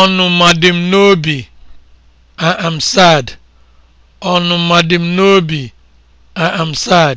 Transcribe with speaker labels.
Speaker 1: ọnụma dị m n'obi I am sad dị m n'obi I am sad